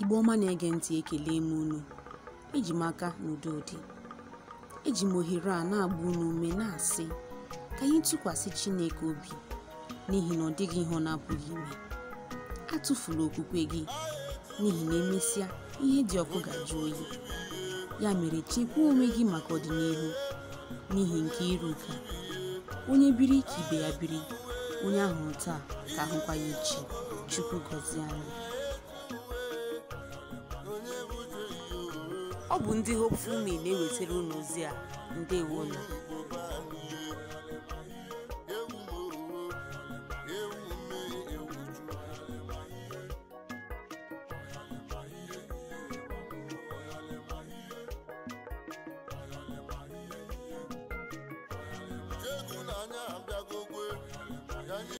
Igbo ọma na-ege ntị ekele m unu eji m aka n'udo dị eji m ohere a na-agba unu ume na-asị ka anyị tụkwasị Chineke obi n'ihi na ọ dịghị ihe ọ na-apụghị ime atụfula okwukwe gị n'ihi na emesịa ihe dị ọkụ ga-ajụ oyi ya mere chekwaa onwe gị maka ọdịnihu n'ihi nke iruka onye biri ka ibe ya biri onye ahụ taa ka ahụkwa ya echi chukwu gọzie anyị ọ bụ ndị Hopeful Mail na-ewetara unu ozi a ndewonu